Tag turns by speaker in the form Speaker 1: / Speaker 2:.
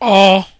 Speaker 1: ọ